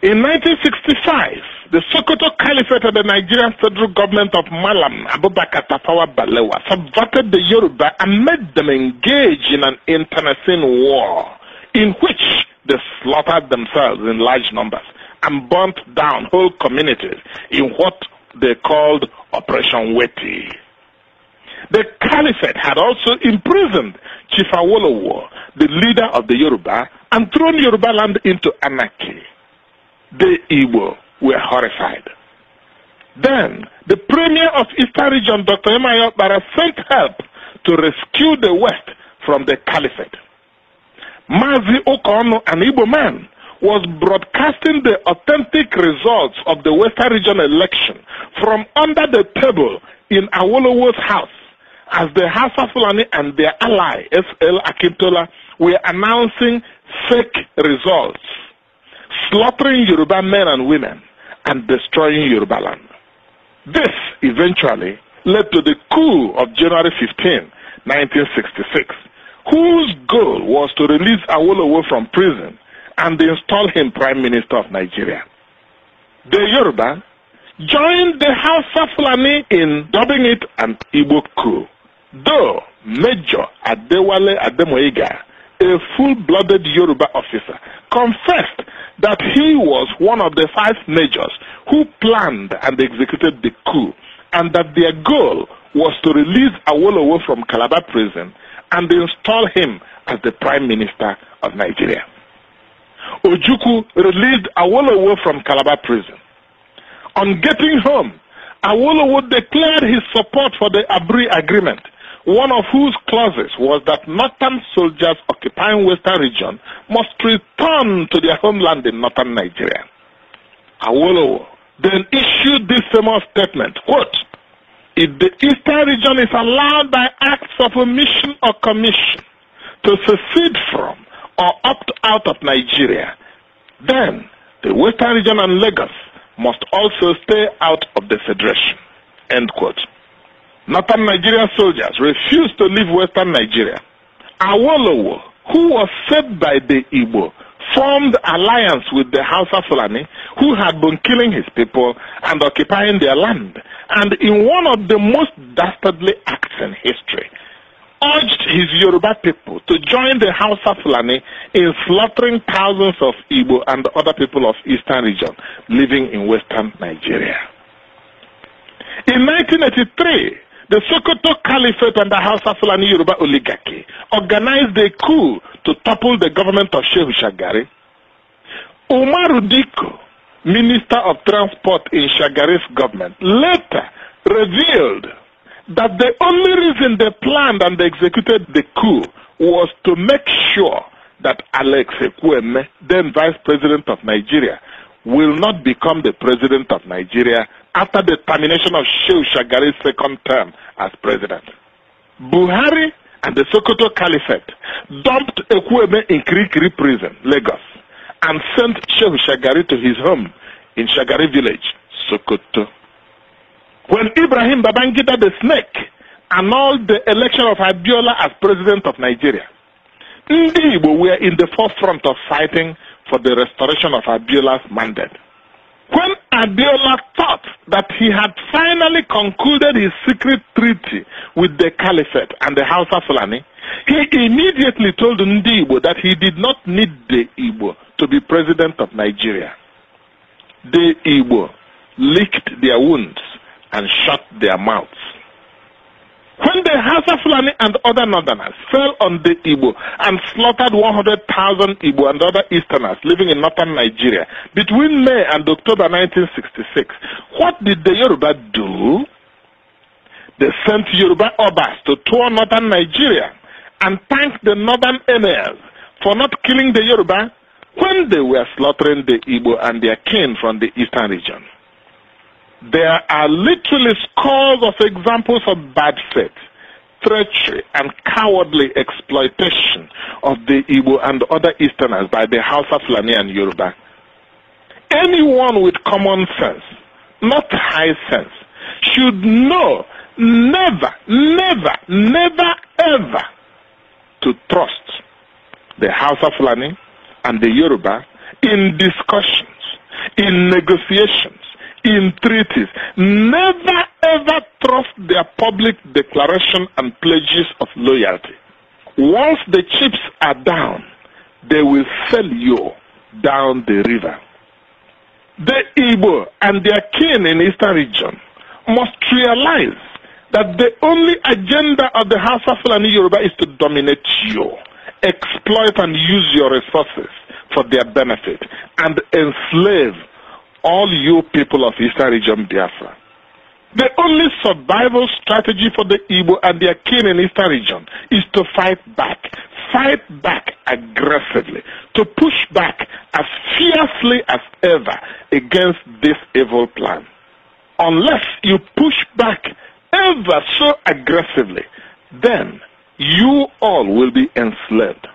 In 1965, the Sokoto Caliphate of the Nigerian federal government of Malam Abubakar Tafawa Balewa subverted the Yoruba and made them engage in an internecine war in which they slaughtered themselves in large numbers and burnt down whole communities in what they called Operation Weti. The Caliphate had also imprisoned Chief Awolowo, the leader of the Yoruba, and thrown Yoruba land into anarchy the Igbo were horrified. Then, the premier of Eastern Region, Dr. Emmanuel Bara, sent help to rescue the West from the caliphate. Mazi Okono, an Igbo man, was broadcasting the authentic results of the Western Region election from under the table in Awolowo's house as the of Fulani and their ally, S.L. Akintola, were announcing fake results slaughtering Yoruba men and women, and destroying Yoruba land. This eventually led to the coup of January 15, 1966, whose goal was to release Awolowo from prison and install him Prime Minister of Nigeria. The Yoruba joined the Hausa Fulani in dubbing it an Igbo coup, though Major Adewale Ademoyiga, a full-blooded Yoruba officer, confessed that he was one of the five majors who planned and executed the coup, and that their goal was to release Awolowo from Calabar prison and install him as the Prime Minister of Nigeria. Ojuku released Awolowo from Calabar prison. On getting home, Awolowo declared his support for the Abri agreement one of whose clauses was that northern soldiers occupying western region must return to their homeland in northern Nigeria. Awolowo then issued this famous statement, quote, if the eastern region is allowed by acts of omission or commission to secede from or opt out of Nigeria, then the western region and Lagos must also stay out of the federation, end quote. Northern Nigerian soldiers refused to leave Western Nigeria. Awolowo, who was saved by the Igbo, formed alliance with the Hausa Fulani, who had been killing his people and occupying their land, and in one of the most dastardly acts in history, urged his Yoruba people to join the Hausa Fulani in slaughtering thousands of Igbo and other people of Eastern region living in Western Nigeria. In 1983, the Sokoto Caliphate and the Hausa Fulani Yoruba oligarchy organized a coup to topple the government of Shehu Shagari. Umaru Diko, Minister of Transport in Shagari's government, later revealed that the only reason they planned and executed the coup was to make sure that Alex Ekweme, then Vice President of Nigeria, will not become the President of Nigeria after the termination of Shehu Shagari's second term as president. Buhari and the Sokoto Caliphate dumped Ekwebe in Kirikiri prison, Lagos, and sent Shehu Shagari to his home in Shagari village, Sokoto. When Ibrahim Babangida the snake annulled the election of Abiola as president of Nigeria, Ndi were in the forefront of fighting for the restoration of Abiola's mandate. When Adeola thought that he had finally concluded his secret treaty with the Caliphate and the House of Fulani, he immediately told Ndi Igbo that he did not need the Igbo to be president of Nigeria. The Igbo licked their wounds and shut their mouths. When the House of and other northerners fell on the Igbo and slaughtered 100,000 Igbo and other Easterners living in northern Nigeria between May and October 1966. What did the Yoruba do? They sent Yoruba Obas to tour northern Nigeria and thanked the northern emirs for not killing the Yoruba when they were slaughtering the Igbo and their kin from the eastern region. There are literally scores of examples of bad faith treachery and cowardly exploitation of the Igbo and other Easterners by the House of Lani and Yoruba. Anyone with common sense, not high sense, should know never, never, never, ever to trust the House of Lani and the Yoruba in discussions, in negotiations, in treaties. Never, trust their public declaration and pledges of loyalty. Once the chips are down, they will sell you down the river. The Igbo and their kin in Eastern region must realize that the only agenda of the Hausa Fulani Yoruba is to dominate you, exploit and use your resources for their benefit, and enslave all you people of Eastern region Biafra. The only survival strategy for the Igbo and their kin in Eastern region is to fight back. Fight back aggressively. To push back as fiercely as ever against this evil plan. Unless you push back ever so aggressively, then you all will be enslaved.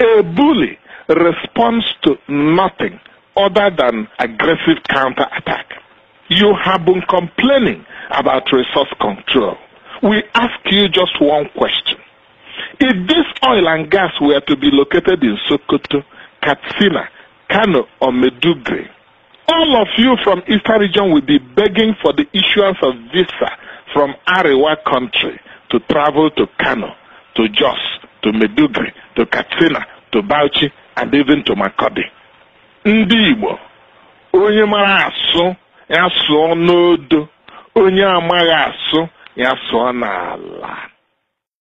A bully responds to nothing other than aggressive counterattack. You have been complaining about resource control. We ask you just one question. If this oil and gas were to be located in Sokoto, Katsina, Kano, or Medugri, all of you from Eastern region will be begging for the issuance of visa from Arewa country to travel to Kano, to Jos, to Medugri, to Katsina, to Bauchi, and even to Makodi. Ndị Igbo, onye ya sụọ n'odo onye amaghị asụ ya sụọ n'ala